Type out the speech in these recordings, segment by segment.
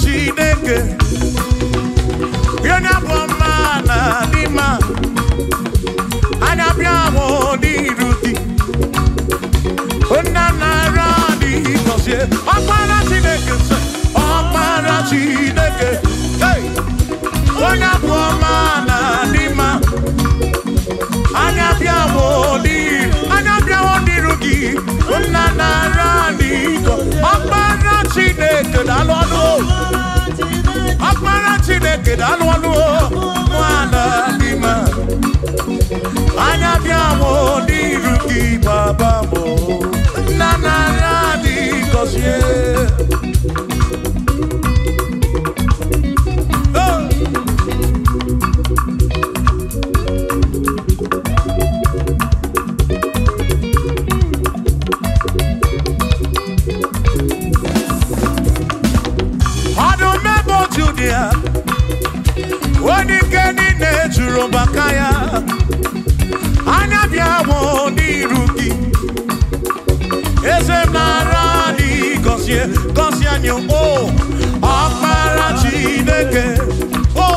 chineke onye bụ mma na anya bịa ahụ dị irudi onye nara dị gọzie ọkpara chineke chineke onye bụ ọma na dị anya bịa dị anya bịa ahụ dịrụ gị onye nara dị Chineke daalụ ọnụ ọkpara Chineke daalụ ọnụ nwaala dị mma anya bịa mụ n'iru gị baba mụ nna narị adị gọzie ya onye ike niile jụrụ maka ya anya bịa bụ eze mara dị gọzie gọzie anyị o ọkpara chineke o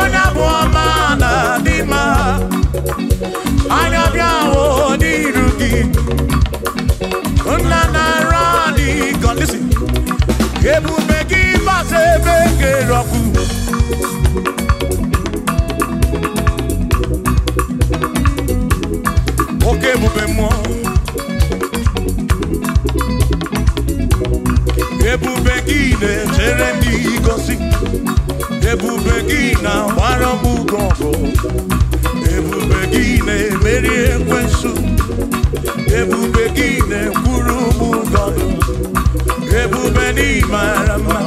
onye bụ ọma na dị mma anya bịa bụ n'iru gị ebube gị masị ebe kere oke ebube mmụọ ebube gị na-echere ndị gosi ebube gị na-agbara m ụgwọ ọgụ ebube gị na-emeri ekwensu ebube gị na-ekwuru m ụgọ ebube n'ịmara mma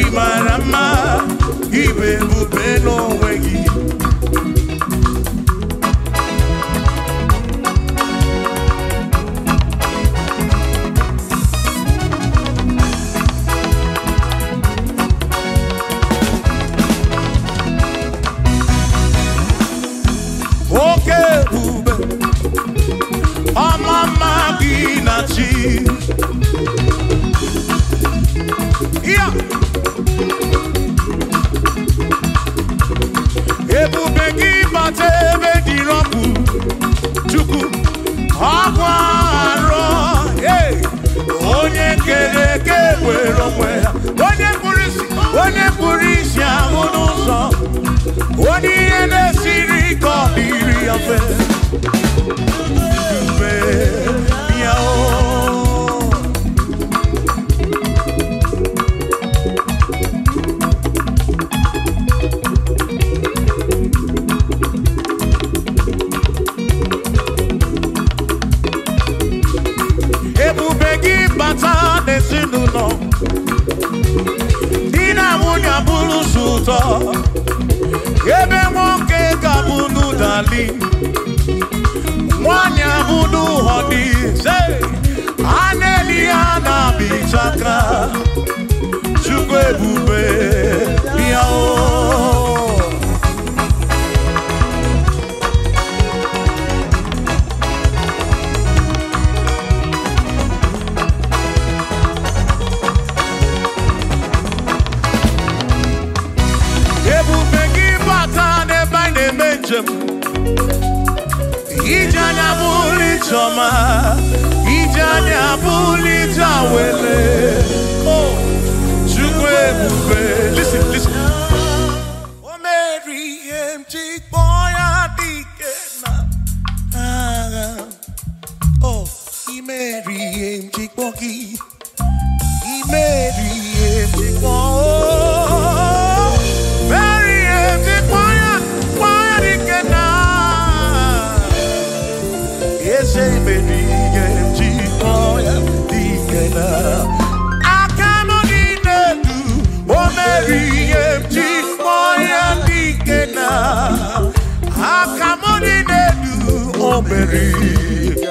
ịmara ibe ebube n'onwe gị affair. cheek, boy, I dig it. Oh, he marry him cheek, boy. Baby.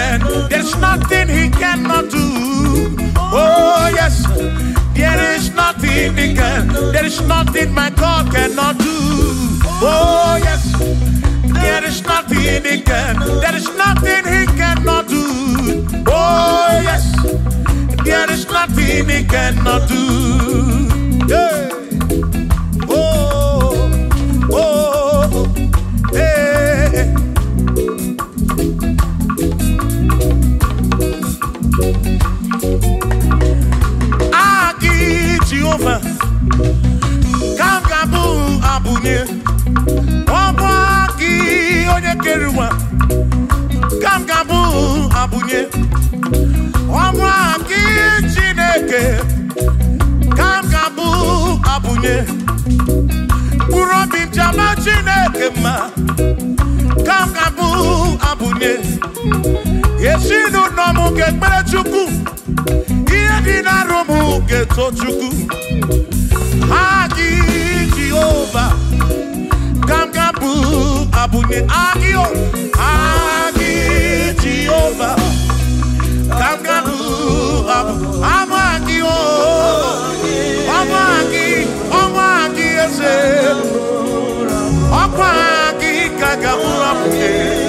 friend. There's nothing he cannot do. Oh, yes. There is nothing he can. There is nothing my God cannot do. Oh, yes. There is nothing he can. There is nothing he cannot do. Oh, yes. There is nothing he cannot do. Yeah. Jehova ka m ga a abụnye ọbụ gị onye kere ụwa ka Abunye ga-abụ abụnye gị Chineke ka m ga-abụ abụnye mkpụrụ obi m ji ama Chineke mma ka m ga-abụ abụnye ezinụlọ m ga-ekpere Chukwu dị na Romu geto chuku, ji Jehova gamgabụ abụnye agịọ agị Jehova gamgabụ abụ anụ agịọ ọnụ agị ọnụ agị eze ọkwa agị ka gamụrụ abụnye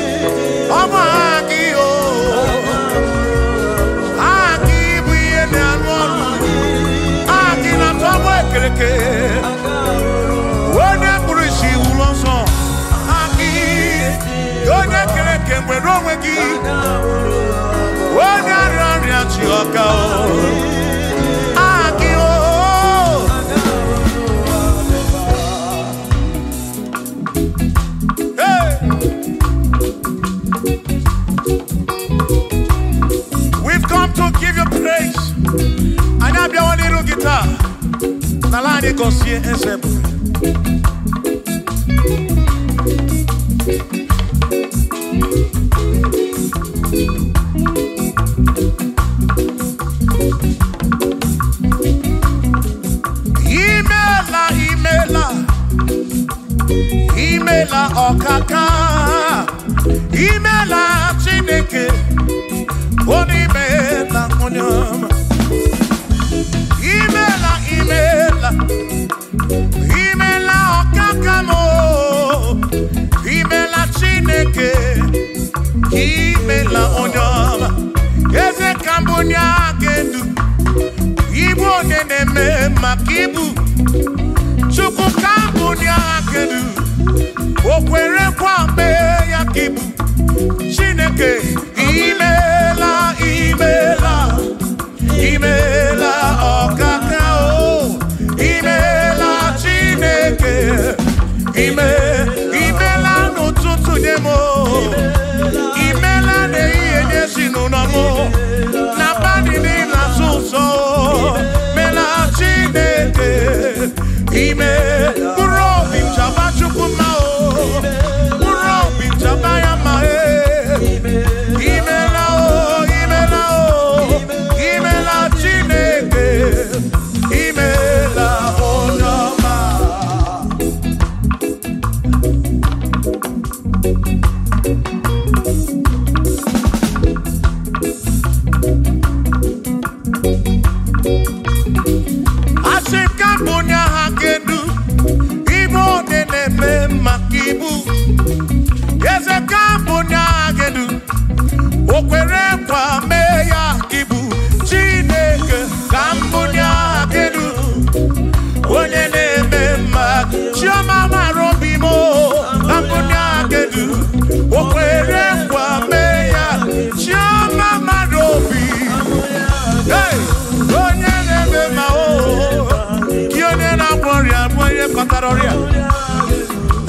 we We've come to give you praise. Anyị abịawa n'iru n'ala anyị gọzie imela ọkaka imela chineke onimela onye ọma imela imela imela ọkaka m imela chineke imela onye ọma eze ka mbụ onye a ibu onye na-eme maka ibu chukwu ka mbụ edu o kwerekwa mee ya ka ịbụ chineke imeela imeela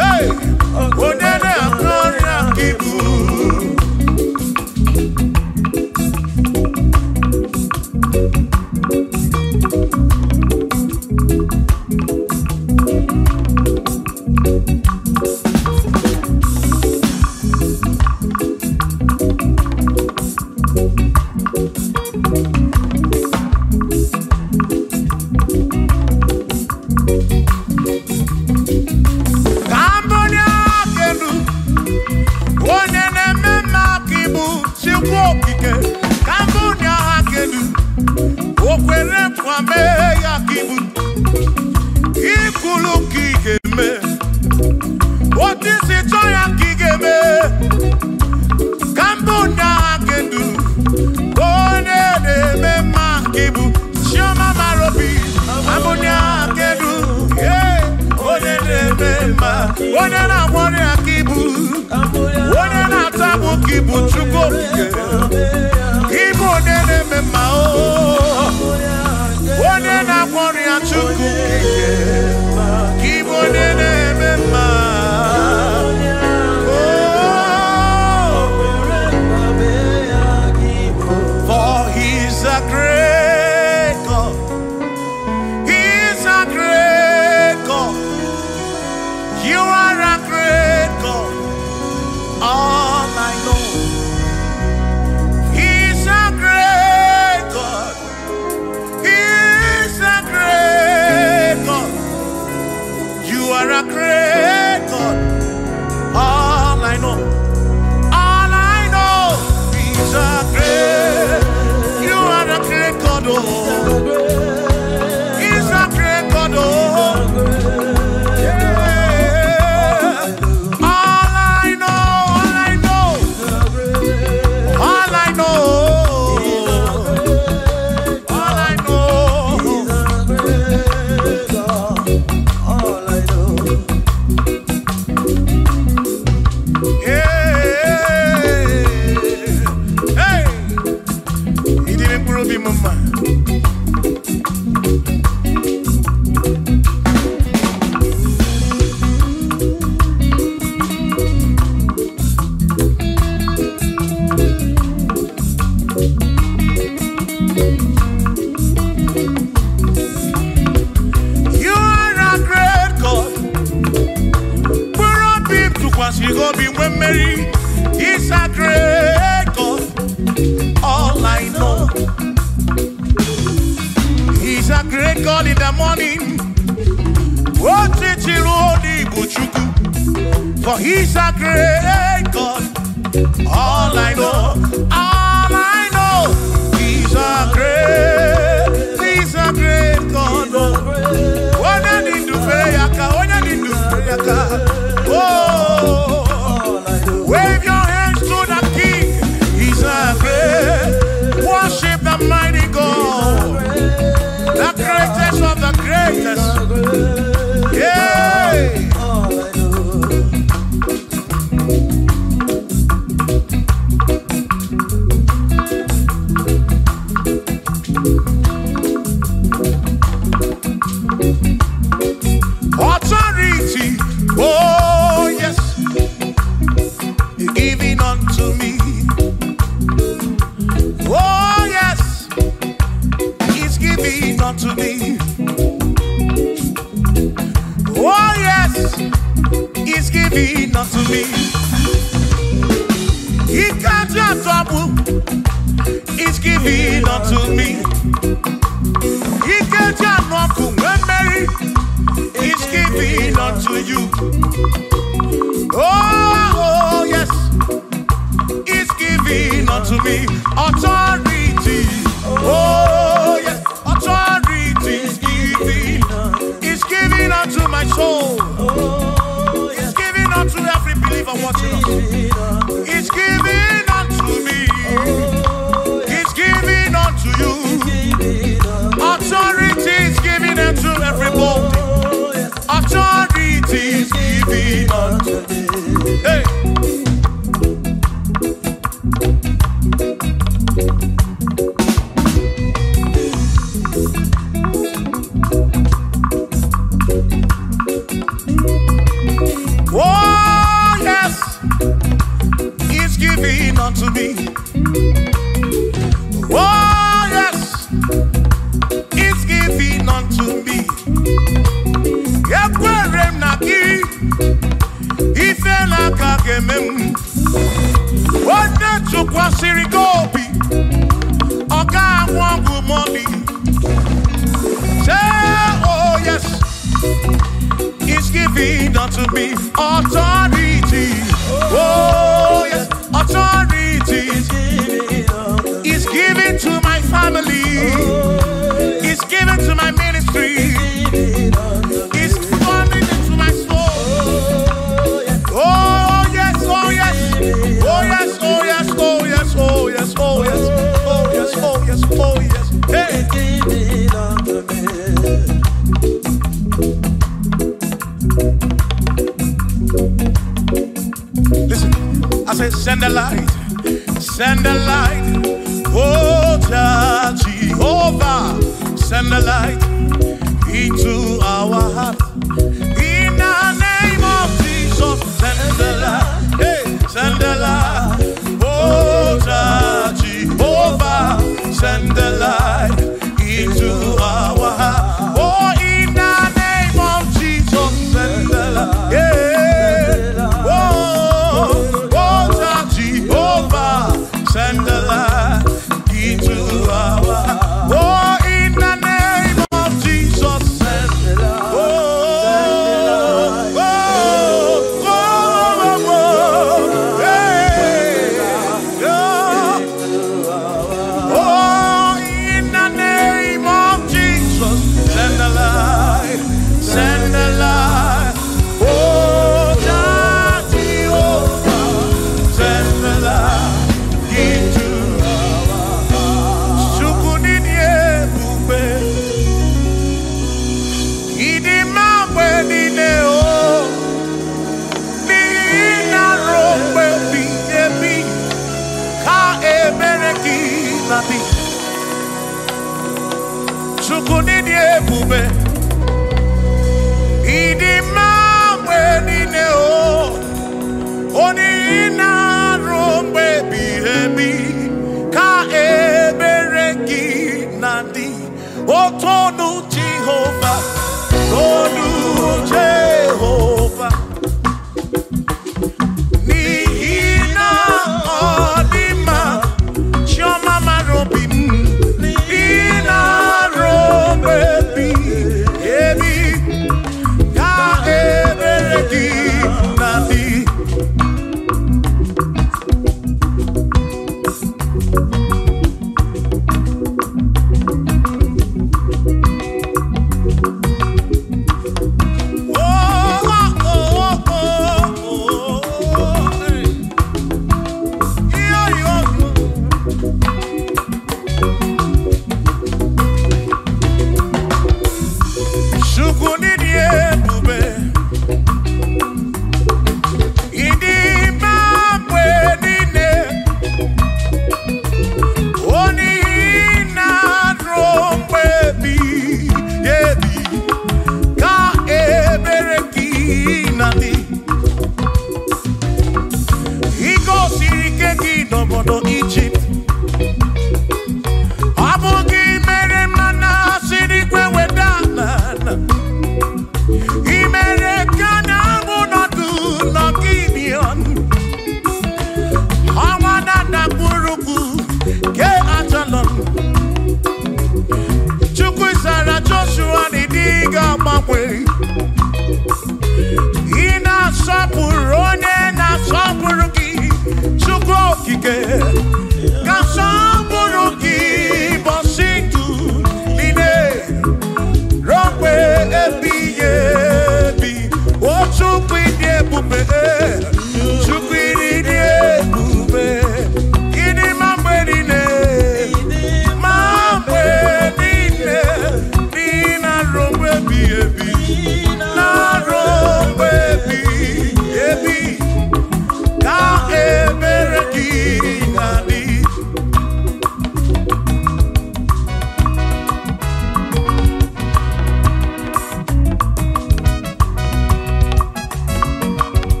Hey! Onene akọrin akibu.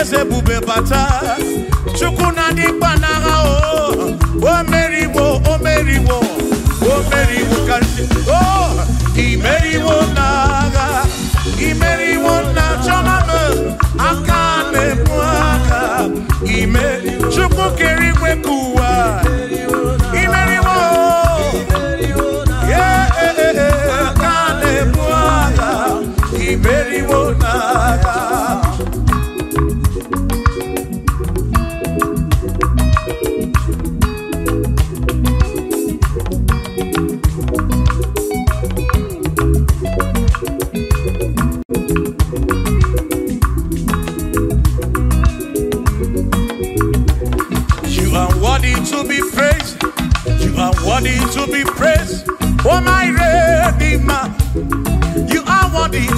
eze bube bata chukwu na ndị gbanagha o wo omeriwo meri wo o imeriwo n'agha imeriwo na chọmama aka na-ekwu aka ime chukwu kere igwe ka ụwa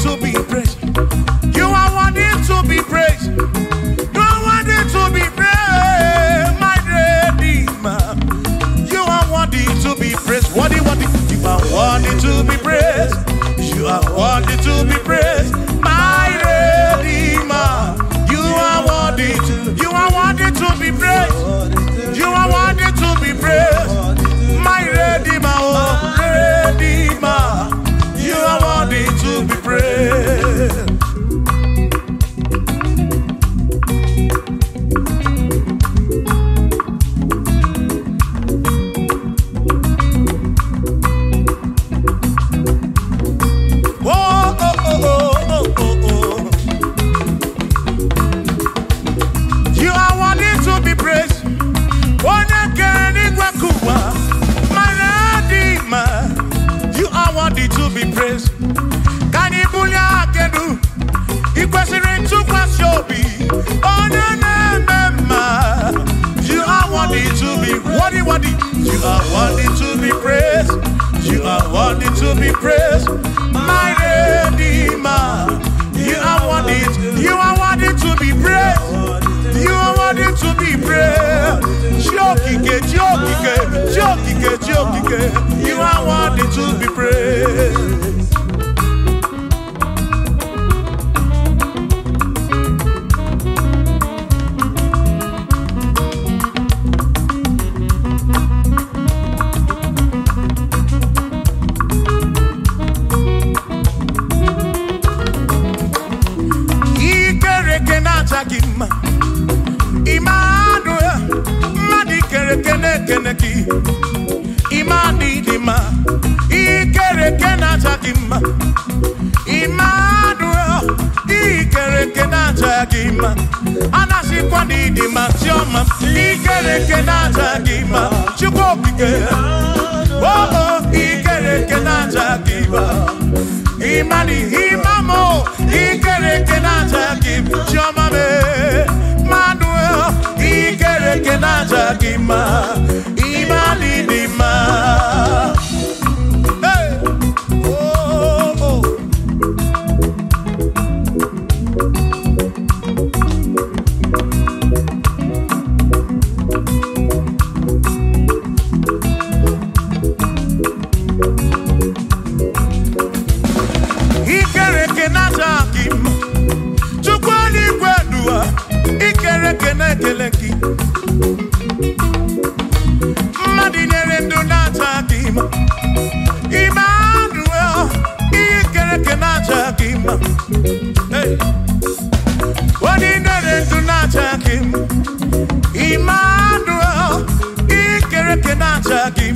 to be praised. You are worthy to be praised. You are worthy to be praised, my Redeemer. You are worthy to be praised. Worthy, worthy. You are worthy to be praised. You are worthy to be praised.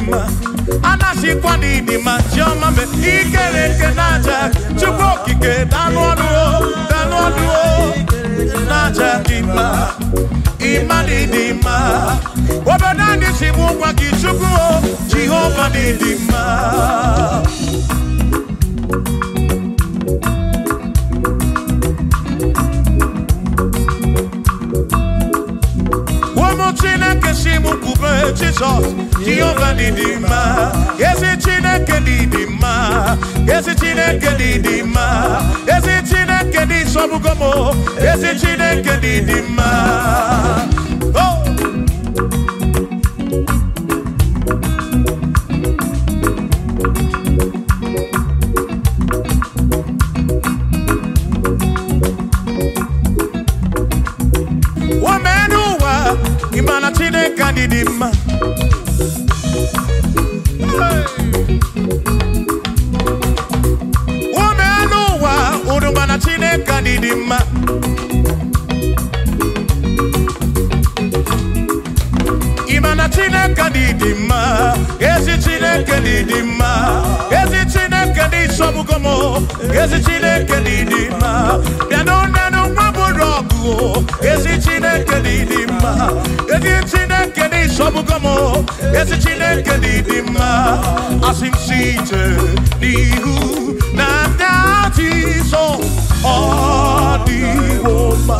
mma anachikwa n'idi ma ọma mbe ikere nke n'aja chukwu okike danụ ọdụ danụ ọdụ n'aja dị mma ịma n'idi mma obodo anyị si bụ ụgwa gị chukwu jehova dị mma ndị m kwube Jizọs Jehova ezi Chineke mma ezi Chineke mma ezi Chineke dị ezi Chineke dị mma ọmụ ezi chineke dị dị mma asị m si ije n'ihu na ndị ajọ iso ọ dịwo mma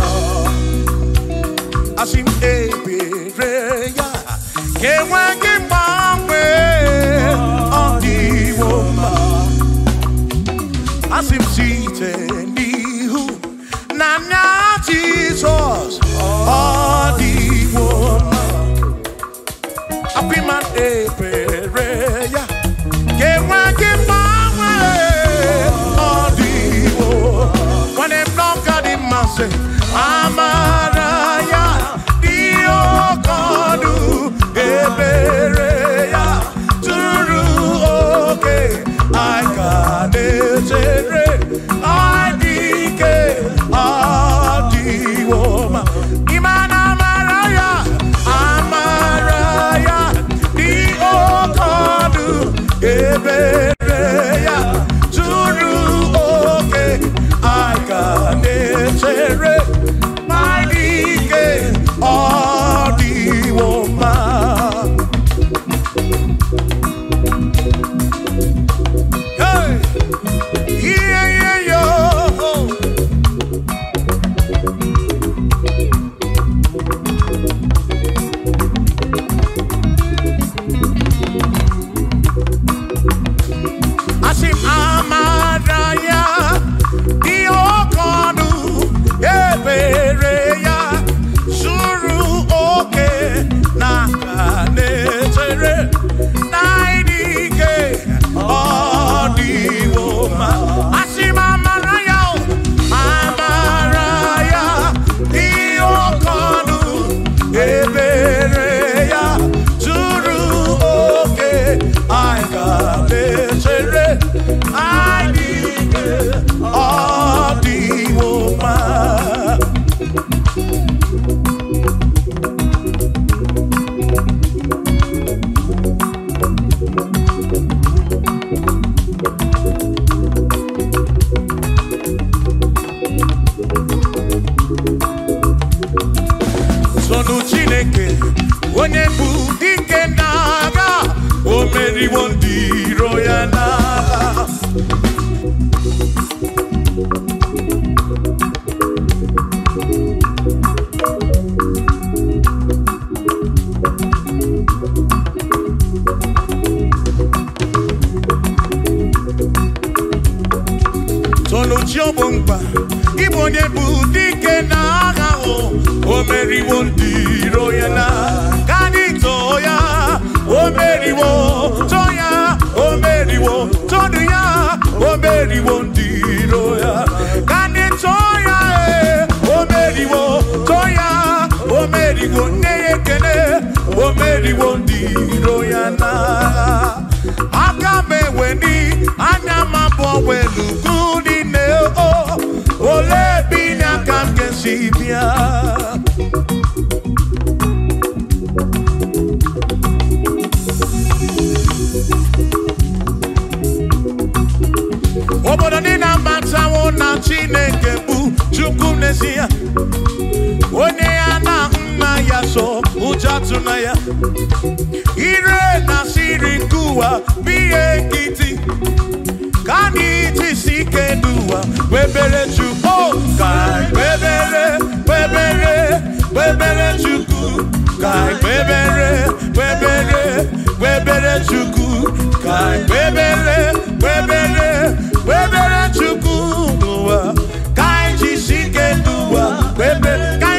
n'ezi mm, ya onye ya so ụjọ tụna ya ire na siri nke ụwa bụ ihe nkịtị ka anyị jisi ike n'ụwa kpebere chukwu ka kpebere kpebere kpebere chukwu ka kpebere kpebere kpebere chukwu ka kpebere kpebere kpebere baby.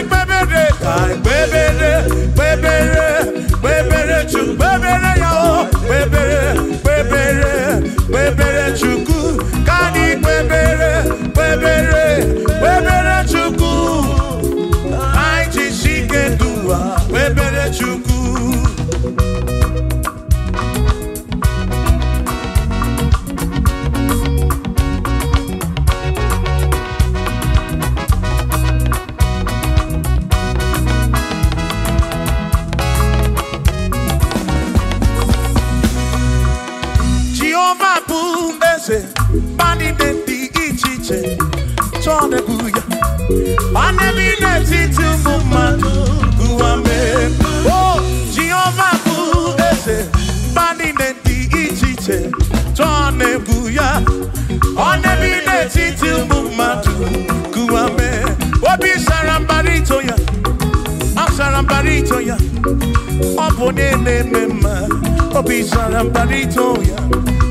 Oh, bim sarambarito ya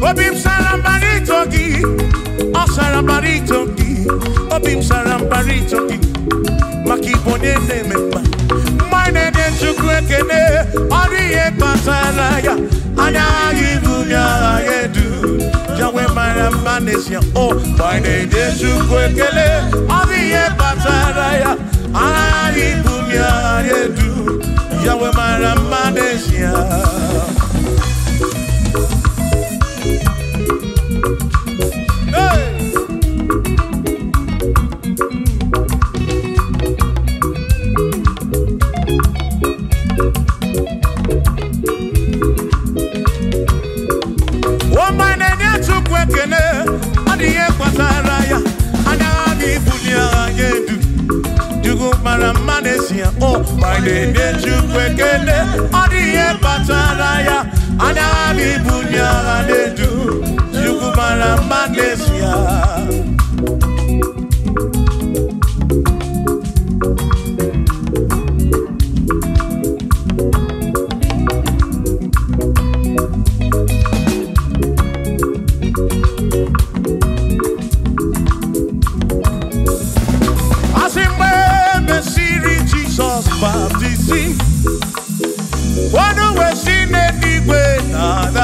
obim sarambarito gi o ma gi obim sarambarito gi makibone nememba ne de chukwekene ori e pasara ya ana ibunya edu jawe mara oh, o ne de chukwekele ori e pasara ya ana ya edu Yahweh, my Ramadesia. na-enye Chukwu ekele ọ dị ihe kpatara ya anya ha bụ ibu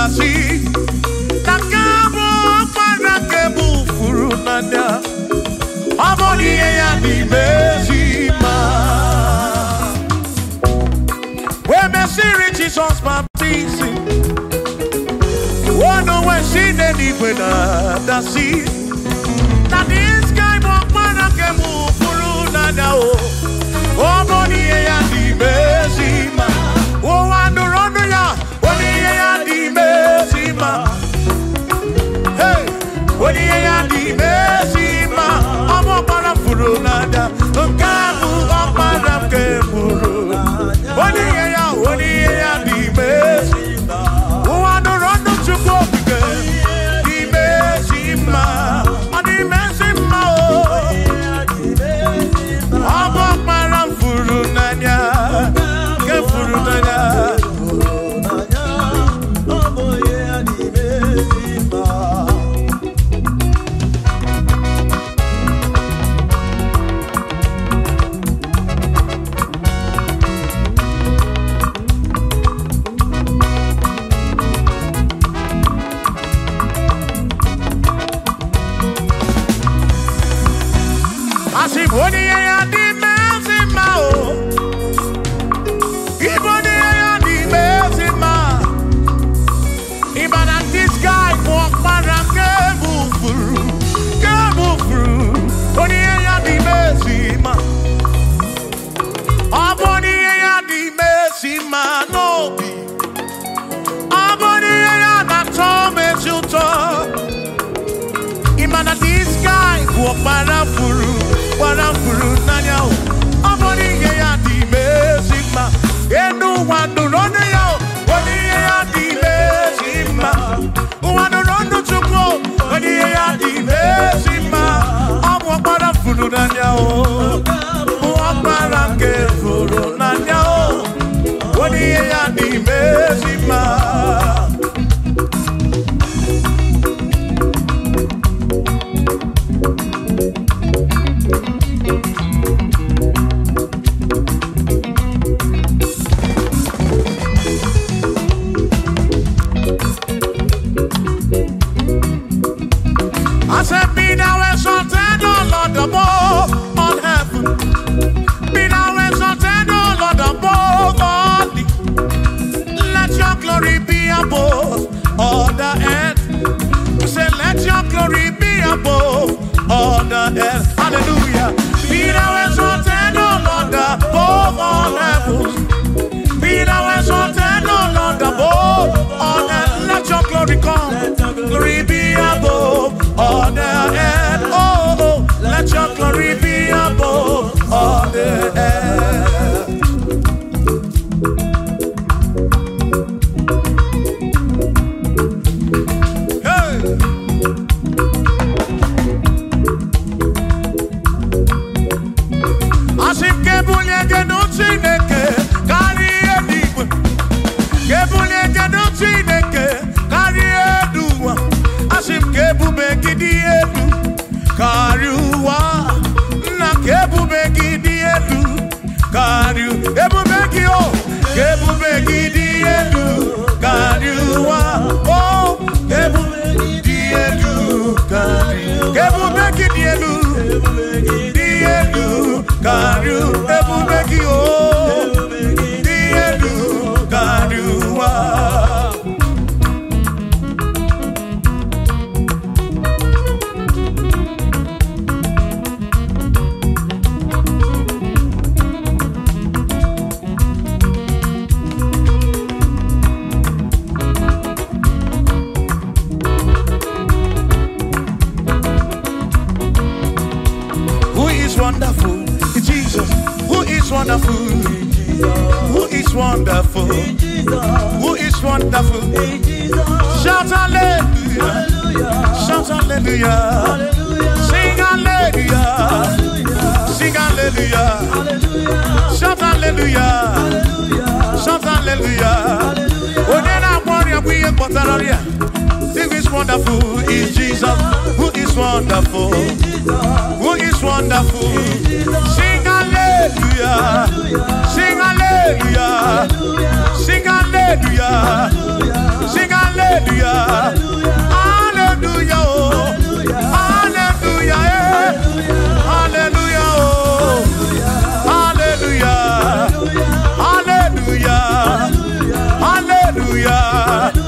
así nakabụ para ke bụ furu n'anya ọ bụrụ ihe ya n'ime ezi ma wee mesịrị Jizọs baptizim wọnụ wee si n'eluigwe na-adasị na dis guy bụ ọkpara ke bụ furu n'anya o ọ bụrụ ihe ya n'ime ezi ma onye ya dị ime ezi mma ọmụ ọgbara furu n'ada nke ahụ let your glory come. Glory be above all the earth. Oh, oh, oh. let your glory be above all the earth.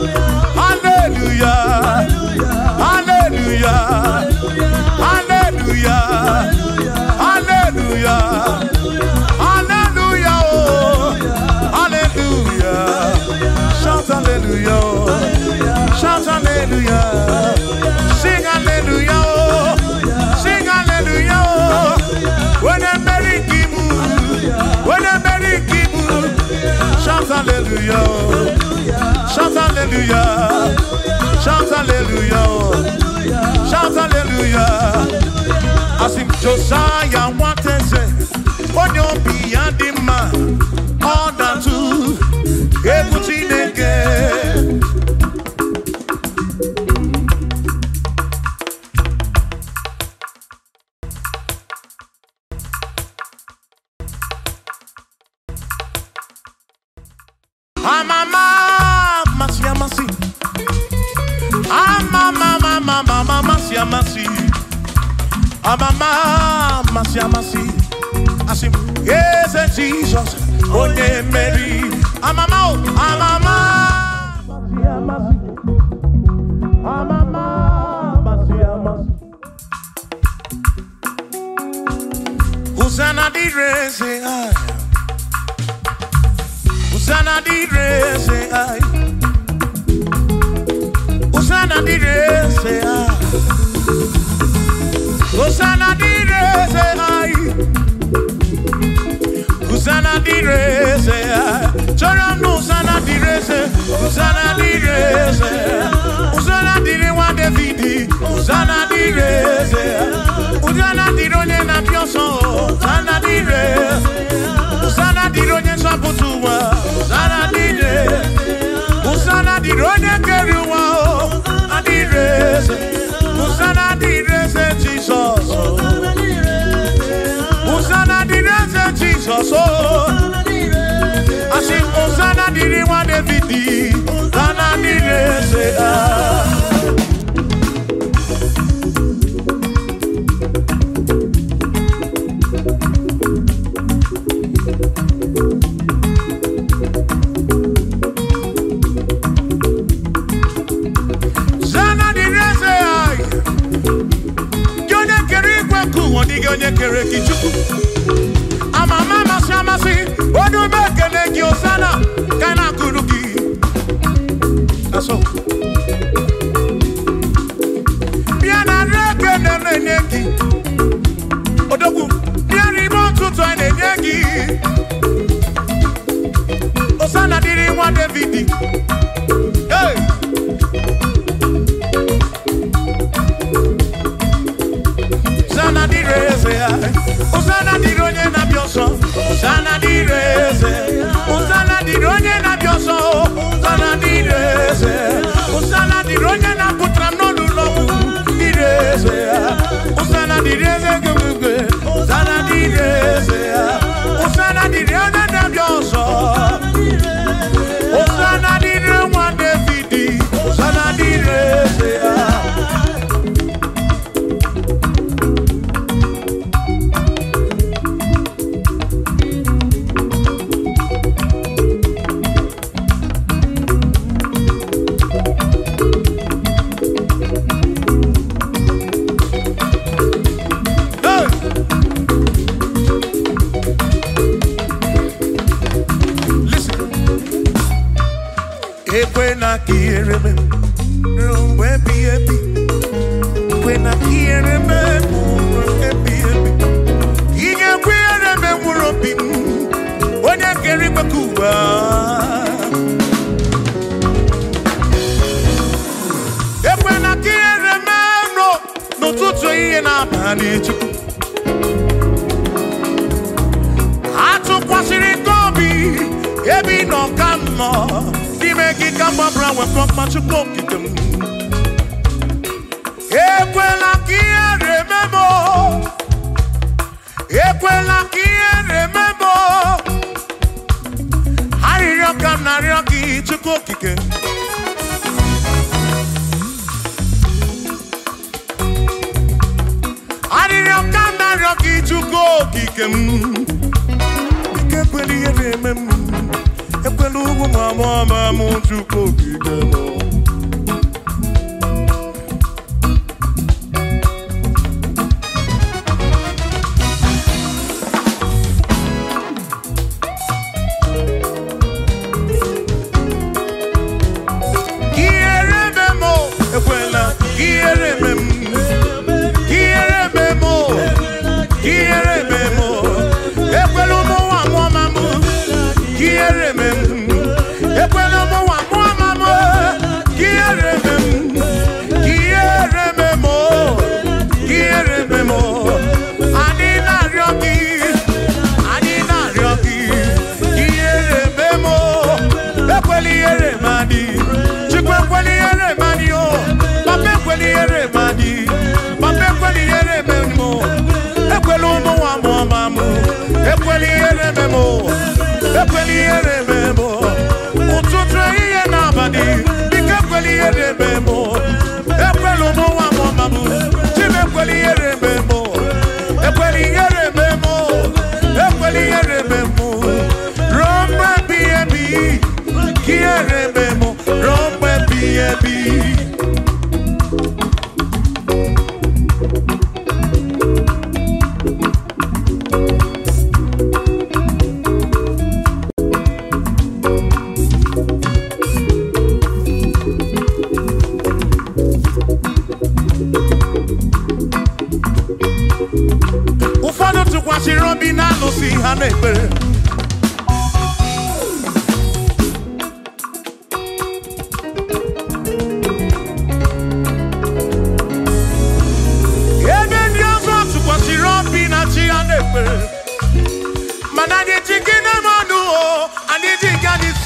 hallelujah. Shout hallelujah. Shout hallelujah. Shout hallelujah. As in Josiah wanted say, what you be and the man, all that too. Hey, amachukwu okike m ekwela ka ihe na ekwela ka ihe na arịrịọ ka m na gị chukwu okike arịrịọ ka m na gị chukwu okike m ekwela ihe na-eme m ndugu mwa mwama mutu kokigemo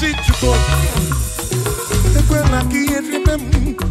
sítio todo. Te cuela aqui em Ribemum.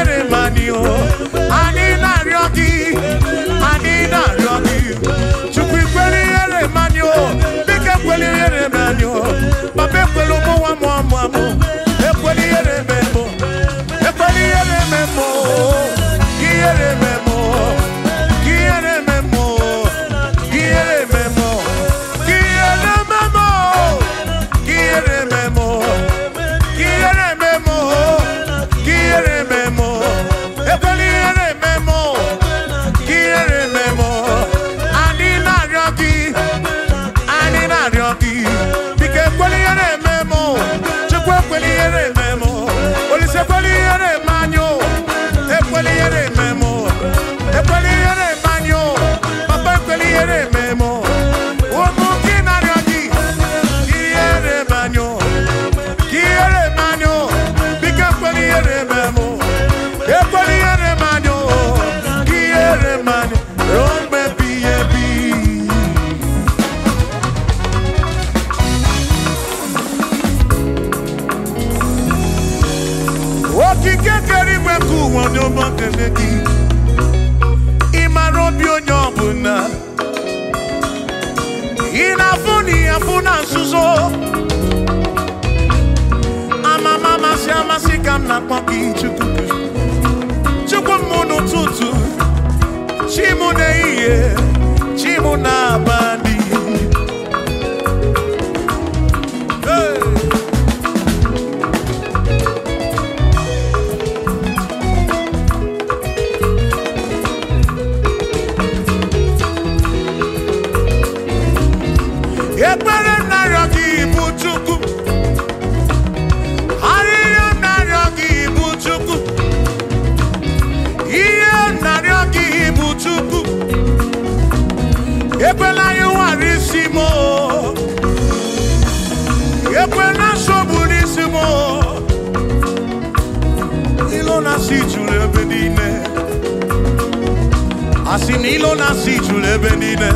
Ebere mani o Ani nari ogi Ani nari ogi Chukwi kweli ere mani o Bike kweli ere mani o Babe kwelo mo wa quan I see you ebe niile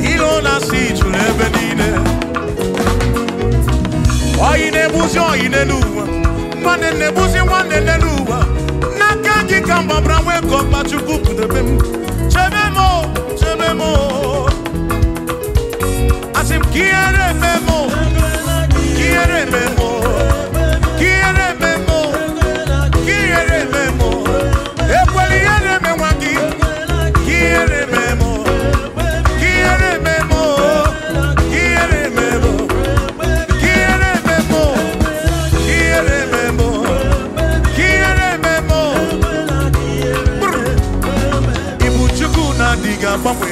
ihe ọ na-asụ ijuru ebe niile oyi na-egbuzi oyi n'elu ụwa nwanne na-egbuzi nwanne n'elu ụwa n'aka gị ka mgbabara nwee ka agbanwe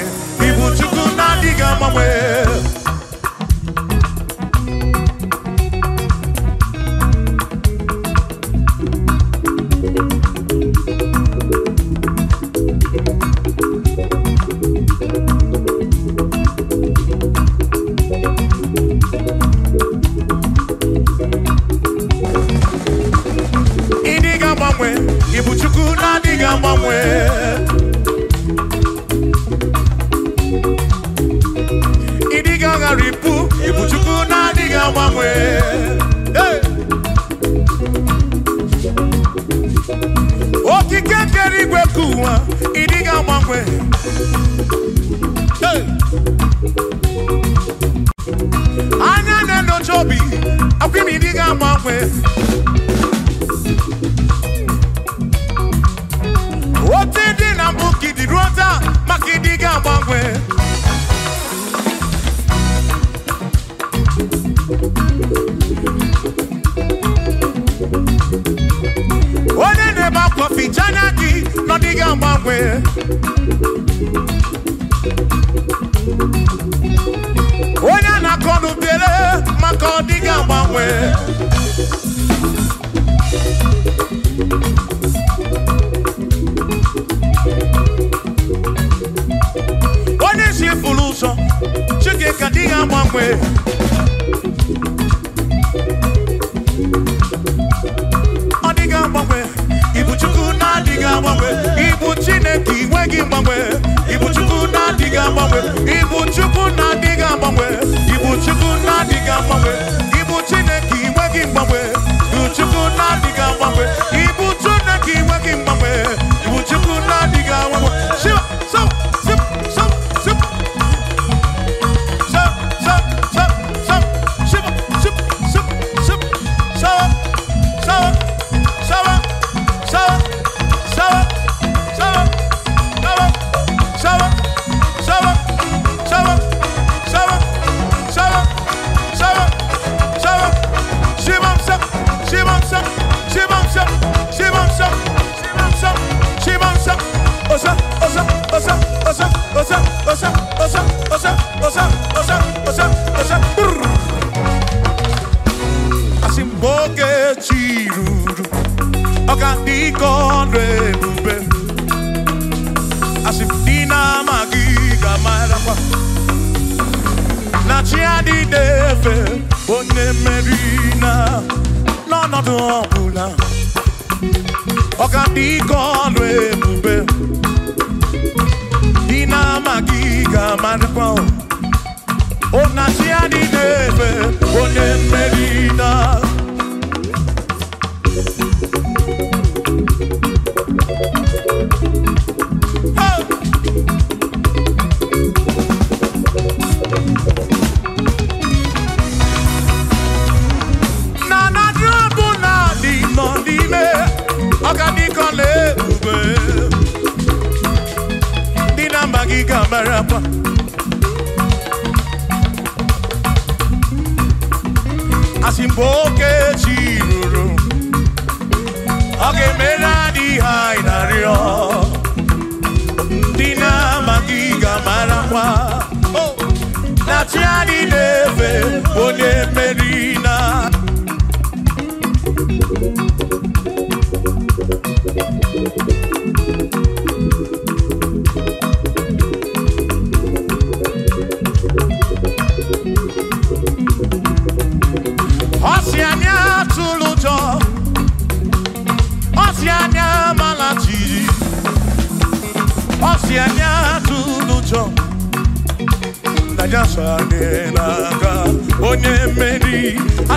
ibu chukwu na my agbanwe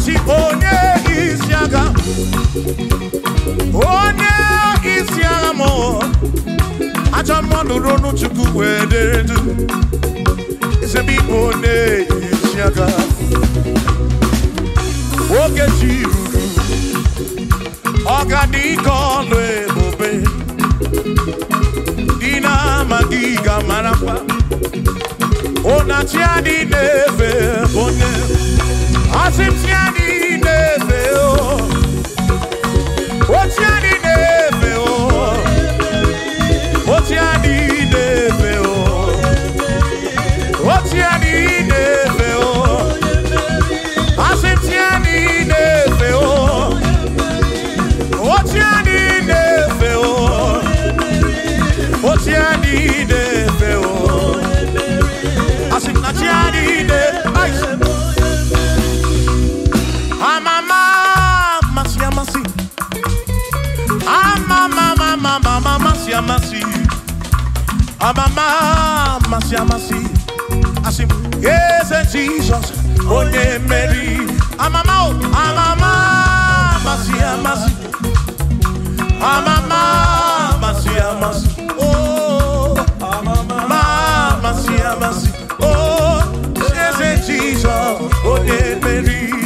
si onye isi agha onye isi agha mụọ ajọ mmadụ ronu chukwu wee dere du ezebe ibe onye isi agha oge ji ruru ọgadike ọlụ ebube dị na-amaghị ga mara mma ụnachi adị na-efe onye asimsiani nefeo otiani Amamá, mamá se assim. así, assim. así es en Jesus, oye oh, Mary. A Amamá, oh, a mamá se llama así, a oh, amamá, mamá se oh, yes, Jesus, Jesus, oh, oye Mary.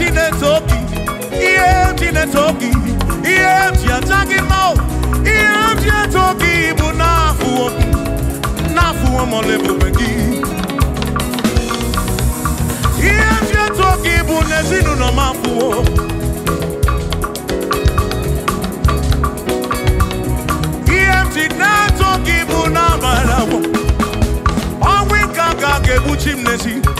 Chinese Oki, Iel Chinese Oki, Iel Chiatagi Mo, Iel Chiatoki, Bunafu Oki, Nafu Amolebu Begi. Iel Chiatoki, Bunezinu no Mafu Iel Chinatoki, Bunabalawo, Awi Kaka Gebuchim Nesi.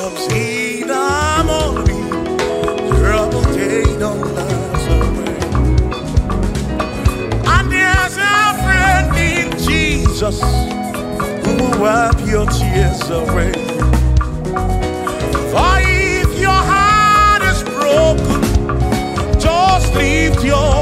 obscene amori, trouble day don't last away. And there's a friend in Jesus who will wipe your tears away. For if your heart is broken, just your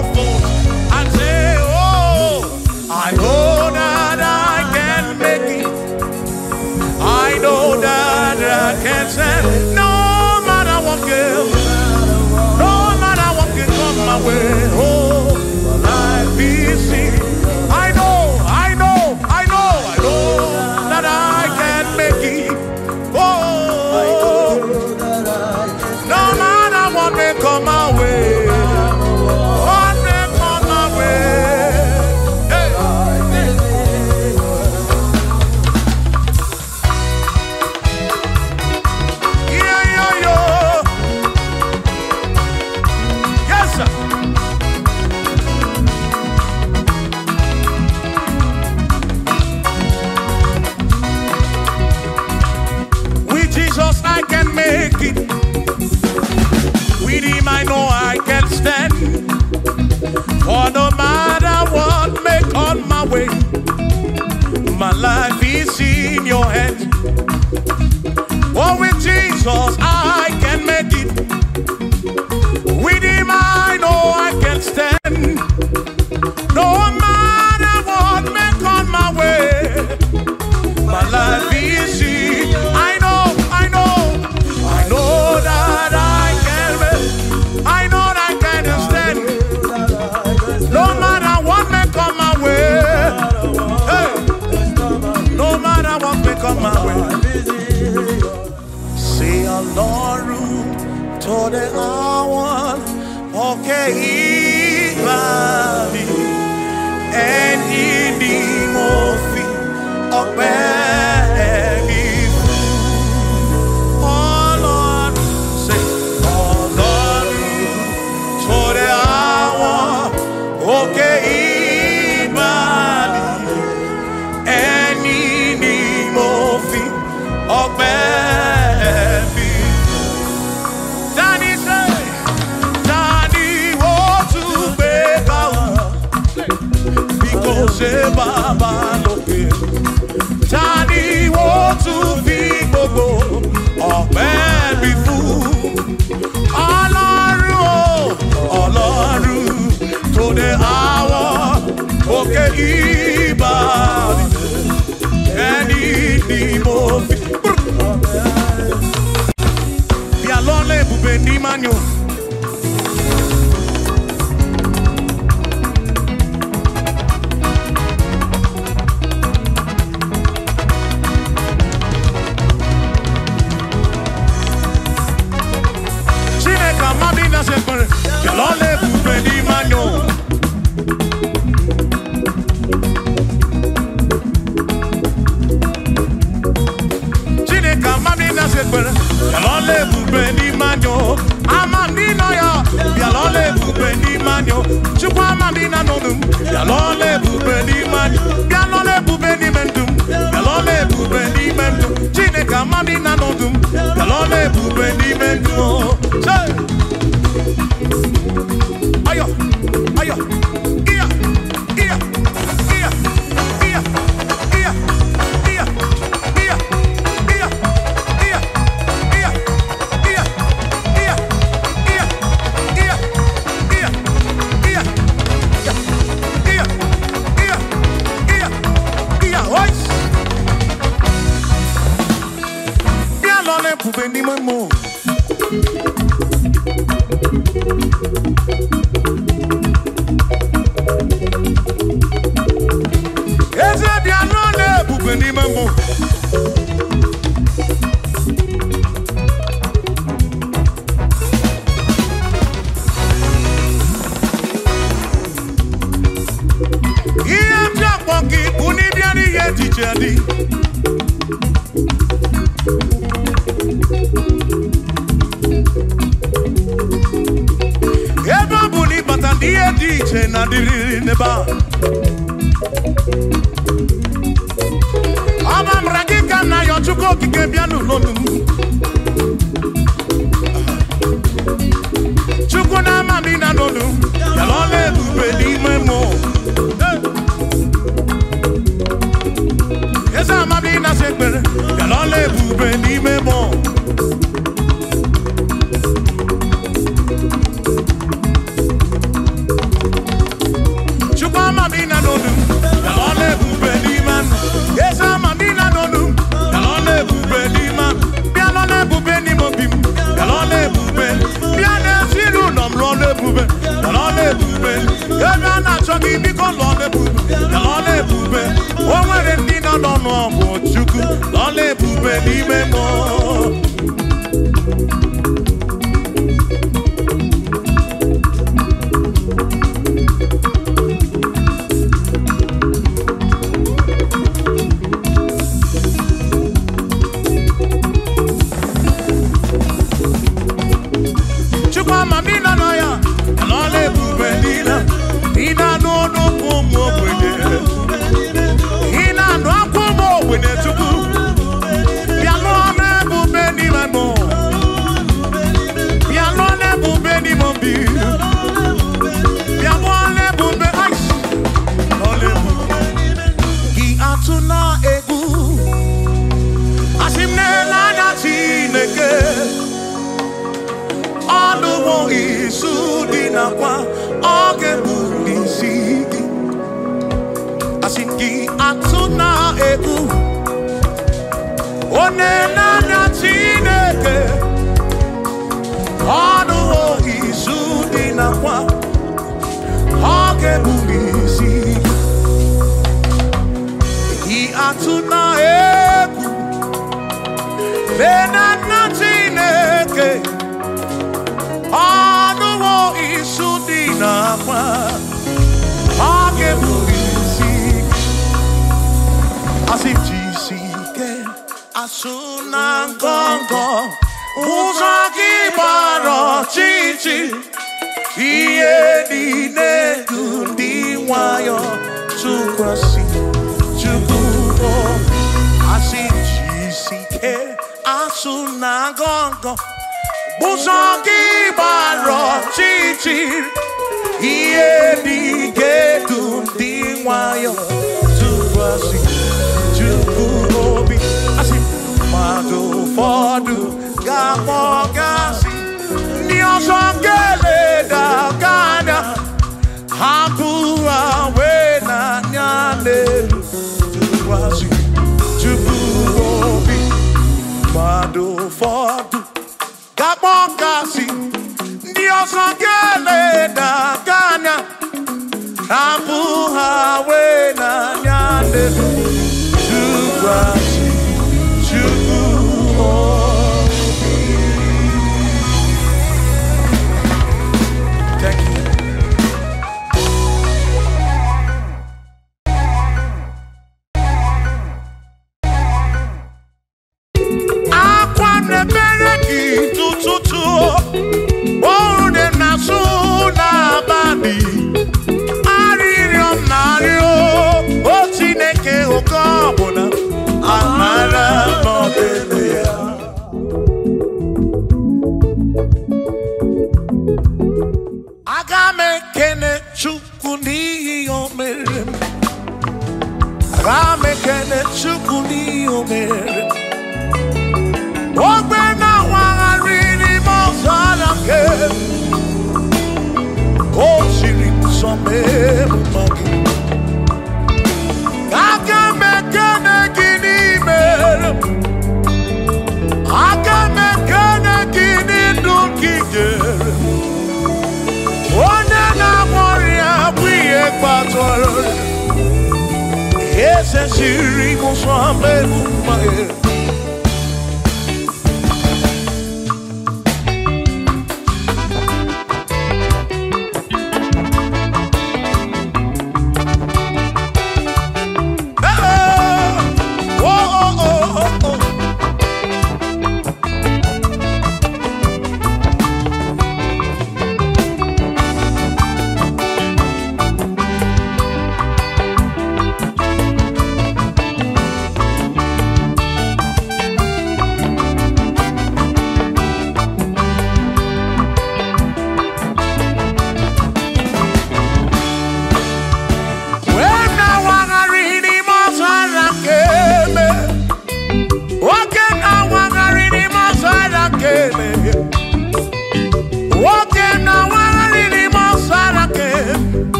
your hand. Oh, with Jesus I can make it. With Him I know I can stand. No matter what may come my way, my life is. seguir. anybody, any more. Bialone bube chukwu anadị na ndụ m bịa n'ọla ebube n'ime anyị bịa n'ọla ebube n'ime ndụ m bịa ebube n'ime ndụ chineke amadị na ndụ m bịa n'ọla ebube n'ime ndụ ayọ ayọ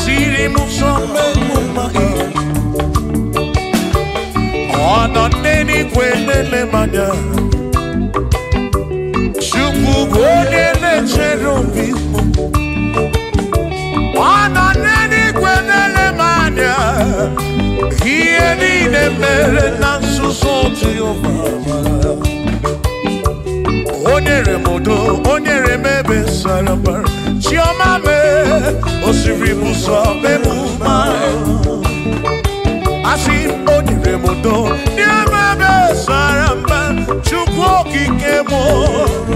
siri muso memumai ọnọdeni kwenele manya chukwu bụ onye na-echere obi ọnọdeni kwenele manya ihe niile mere na nzuzo jehova o nyere m udo o nyere m ebe sara mbara Hoje vivo só pelo mal Assim onde vem mudou E a minha saramba Chupou que queimou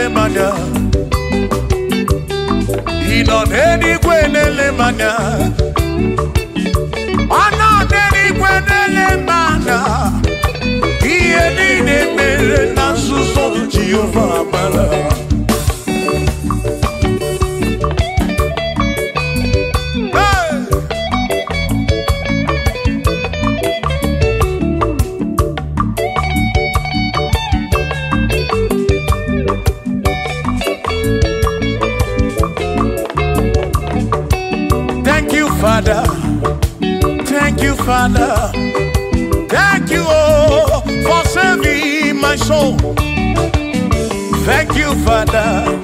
na-ele mmadụ ị nọ n'eluigwe na-ele mmadụ ọ nọ n'eluigwe ihe niile mere na nzuzo Jehova mara Thank you, Father.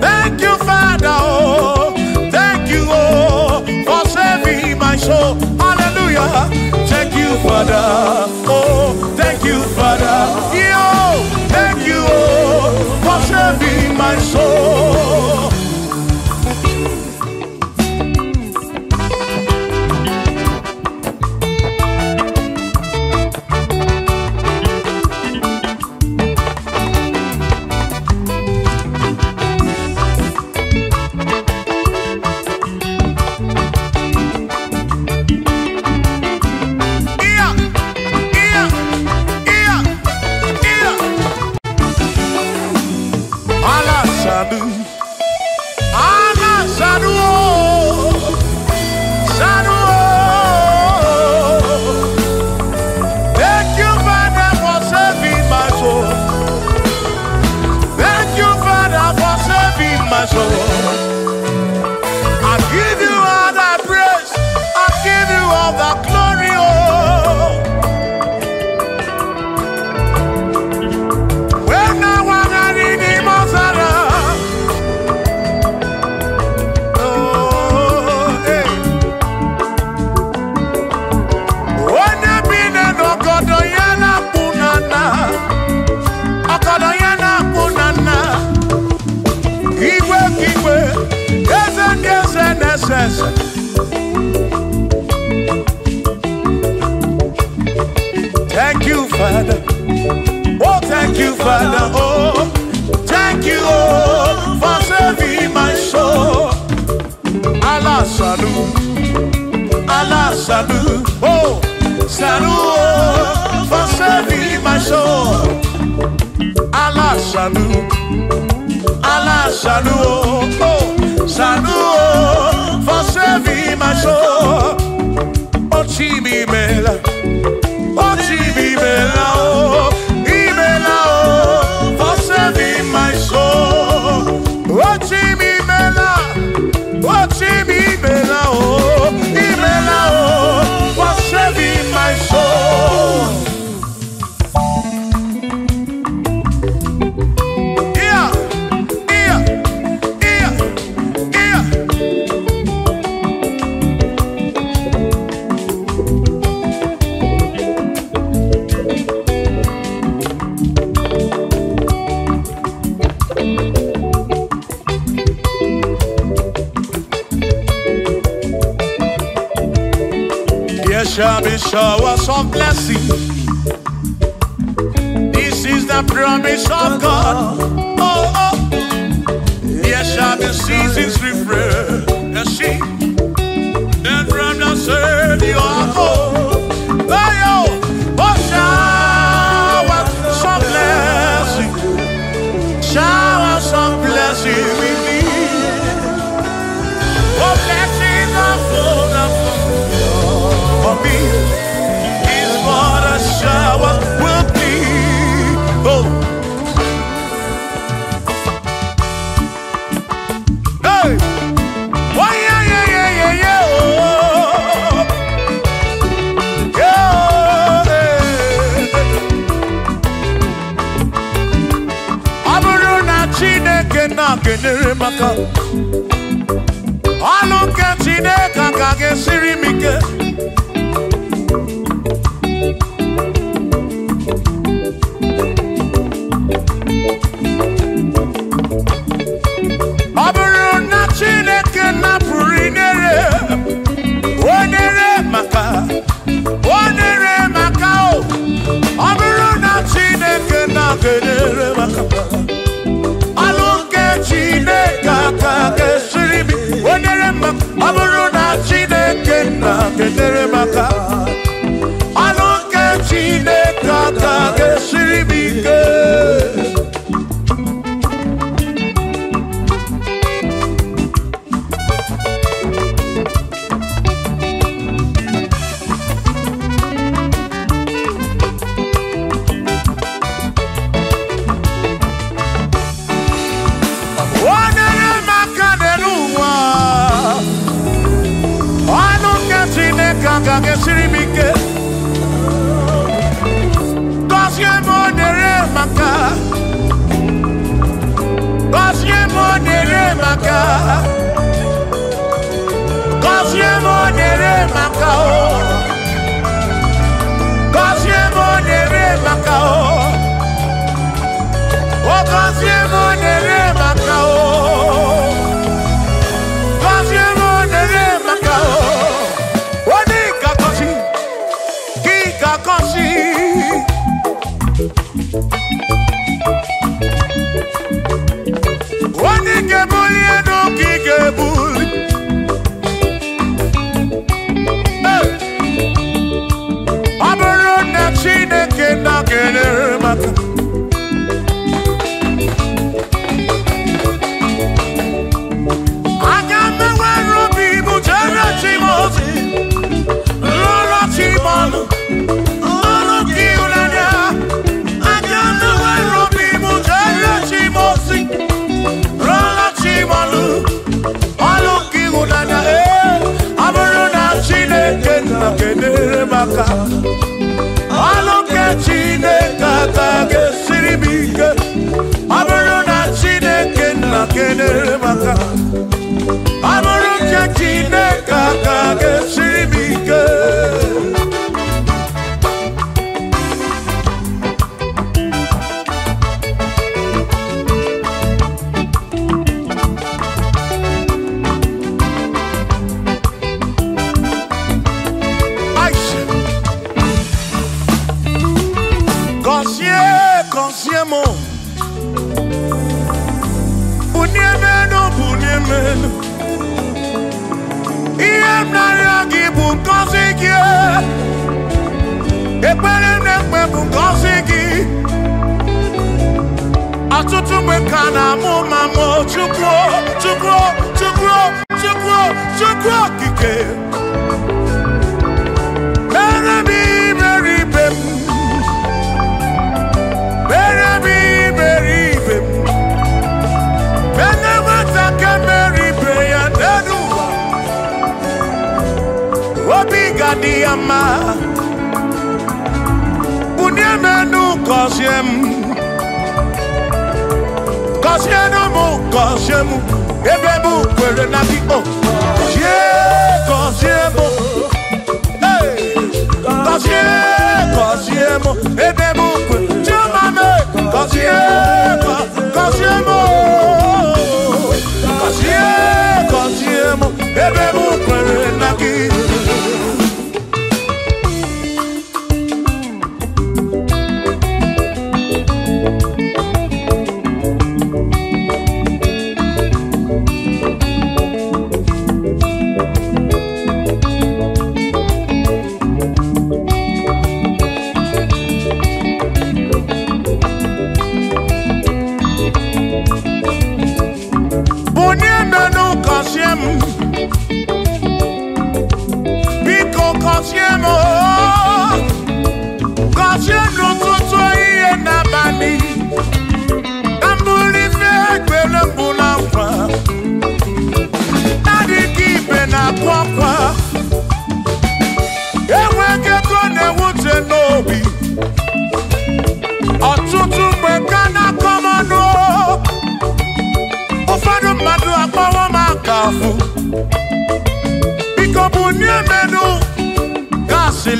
Thank you, Father. Oh, thank you, oh, for saving my soul. Hallelujah. Thank you, Father.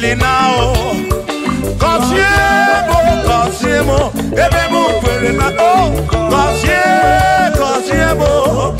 linao Gọzie mụ, gọzie mụ, ebe mụ kwere na o Gọzie, gọzie mụ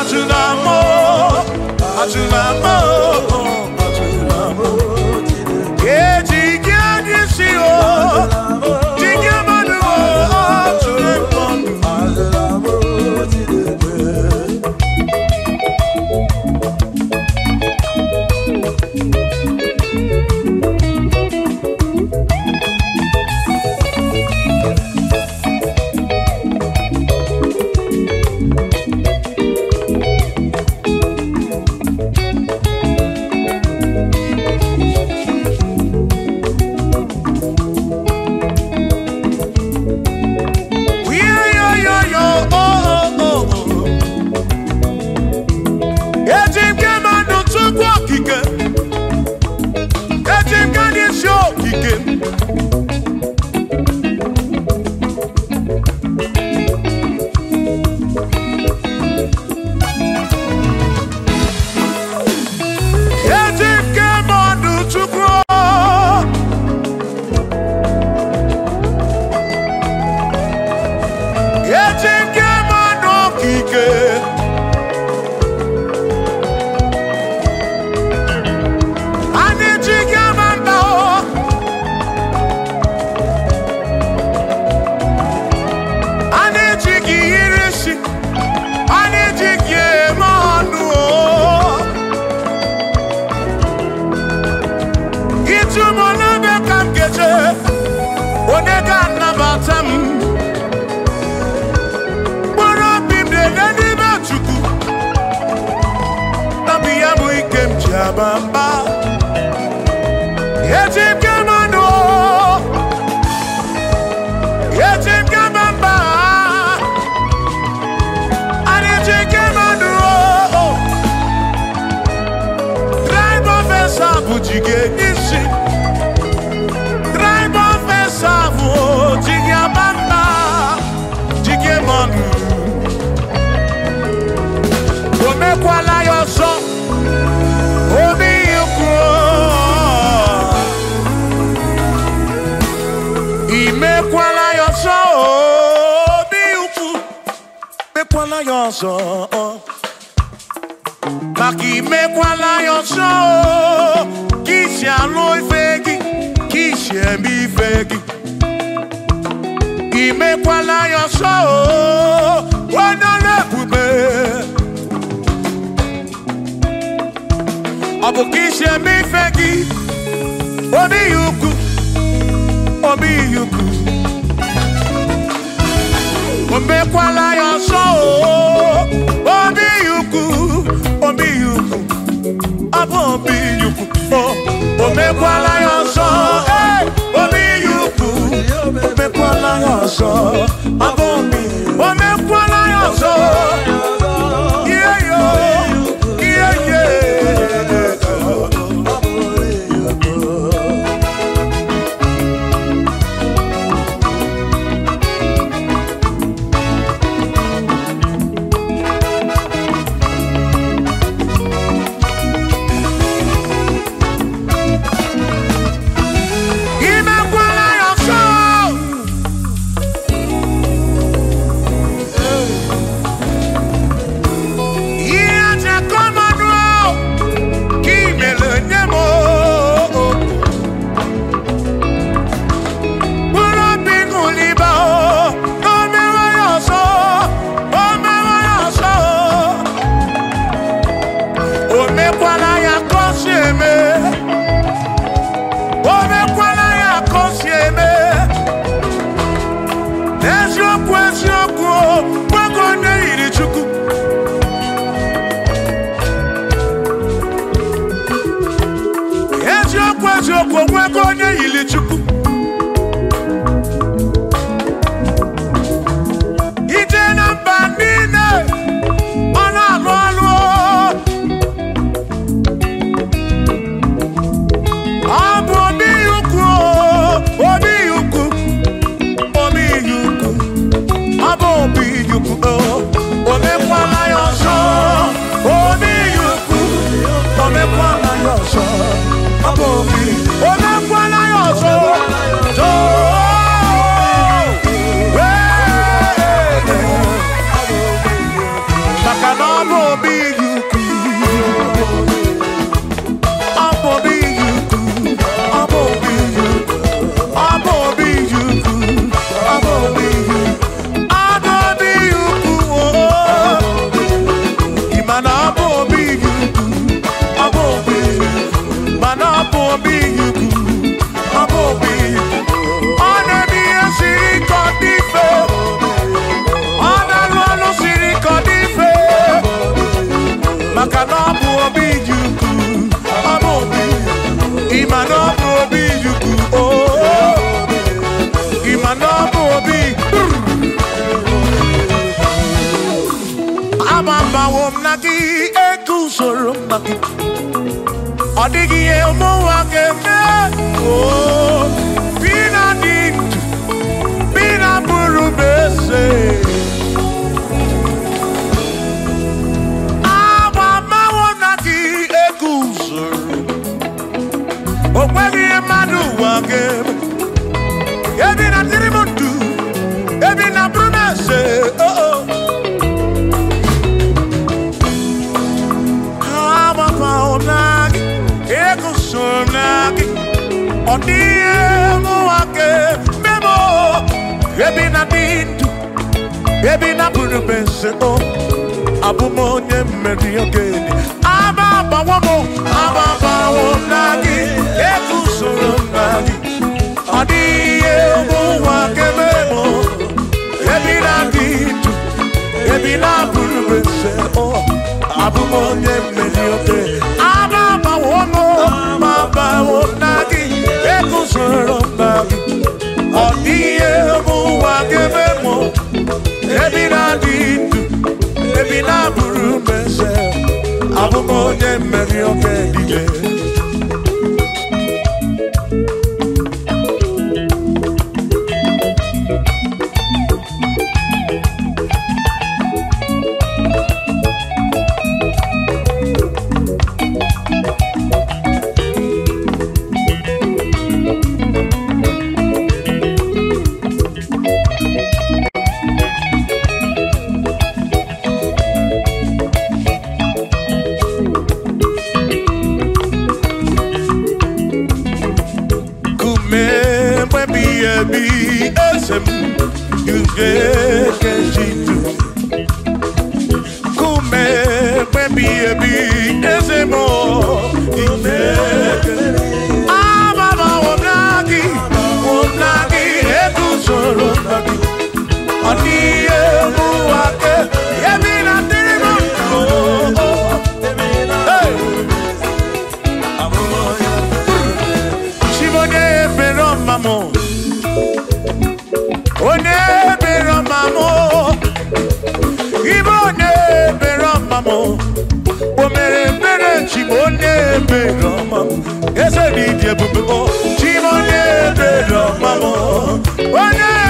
à tout l'amour, à Oh. ndụ ebe napụrụ m nseto abụ onye mmeri okenye aba agbawa m aba agbawo na gị ego usoro na gị ọ dịghị ihe ụwa kebe m ebi na gị ndụ ebi napụrụ m onye mmeri aba agbawo m aba agbawo na gị usoro na gị ọ dịghị ebe mụ ebi na-adịghị ndụ ebi na-abụrụ meze abụ m onye mmeri oge eze oh, dị dị ebube oh. onye ebere ọma m onye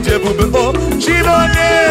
ije ebube o oh, Chinonye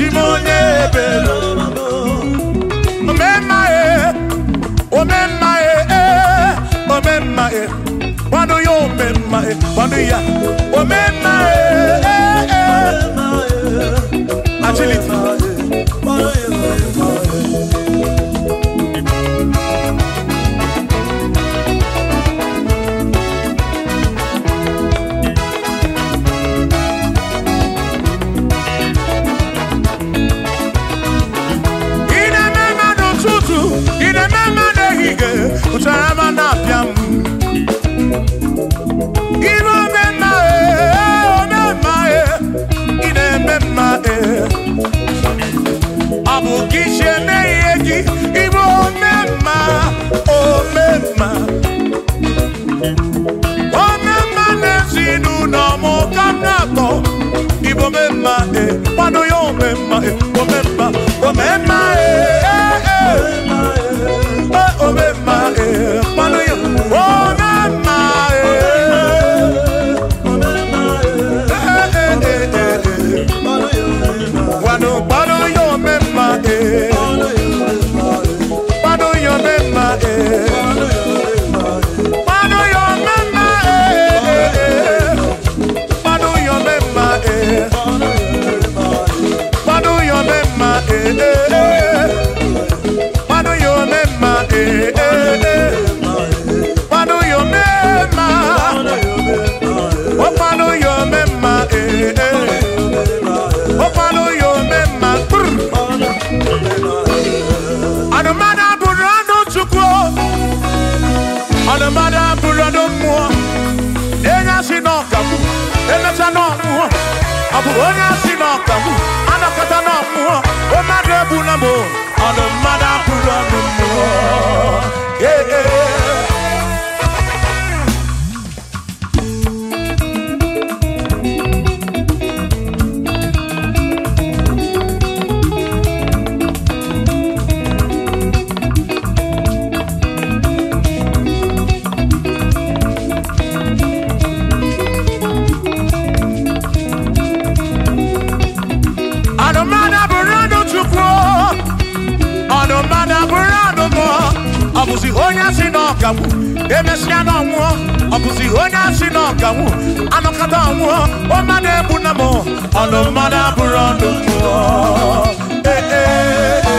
chimonye ebelo omemma e omemma e eh. omemma e kwando yo omemma e kwando ya omemma e, eh, kwado ya omemma e, eh, omemma, omemma e. Eh? ọ bụrụ onye asị na ọkagbu anakọta na ọ o mmadụ na ọnụ mmadụ abụrụ ọnụ mmụọ ọ̀gàwù emesi anọ ọnwụọ ọbụzi onye asị na ọgawụ anọkata ọnwụọ ọma na-ebu na m ọnụ mmadụ abụrụ ọnụ mmụọ ee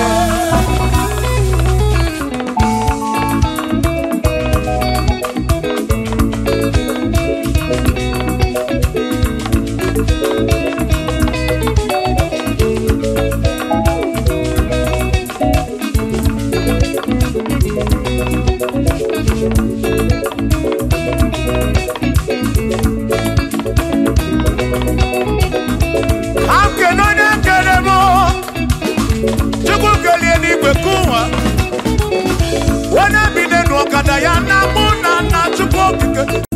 Diana Mona not to okike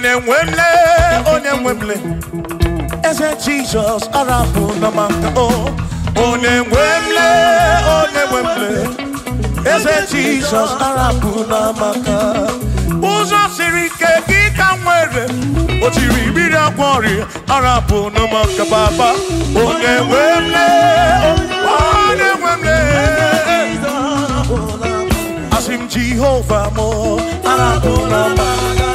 onye nwemle onye nwemle eze jizọs arapụ na maka o onye nwemle onye nwemle Jesus jizọs arapụ na maka ụzọ siri ike gị ka nwere o tiri mmiri agwa ọrịa arapụ na maka baba onye nwemle onye nwemle asị m jehova m arapụ na maka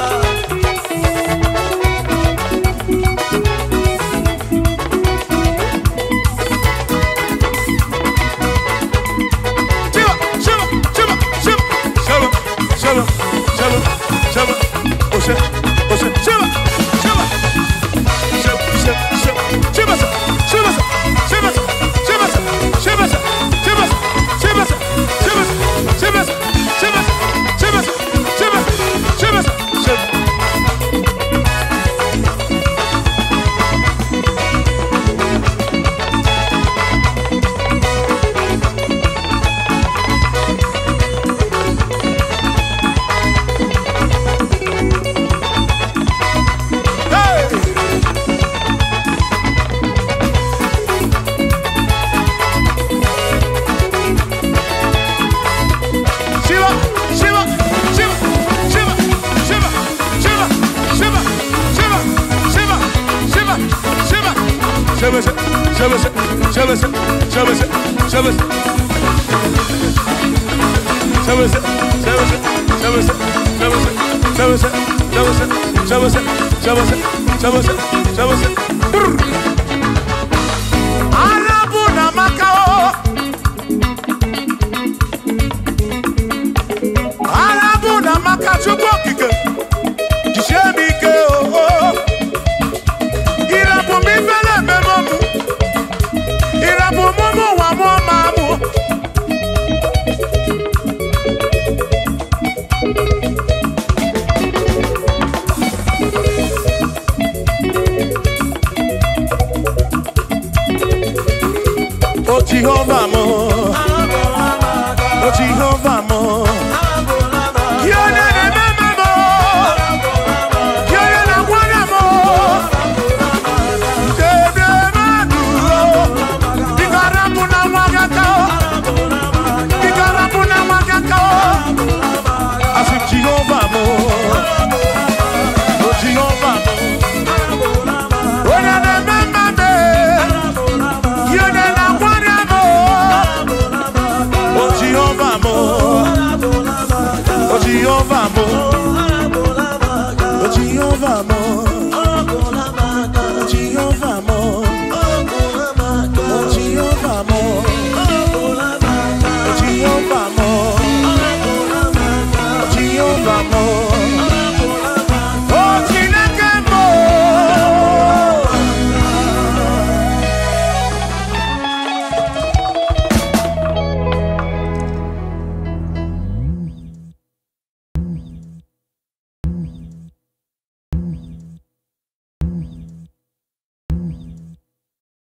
Vamos.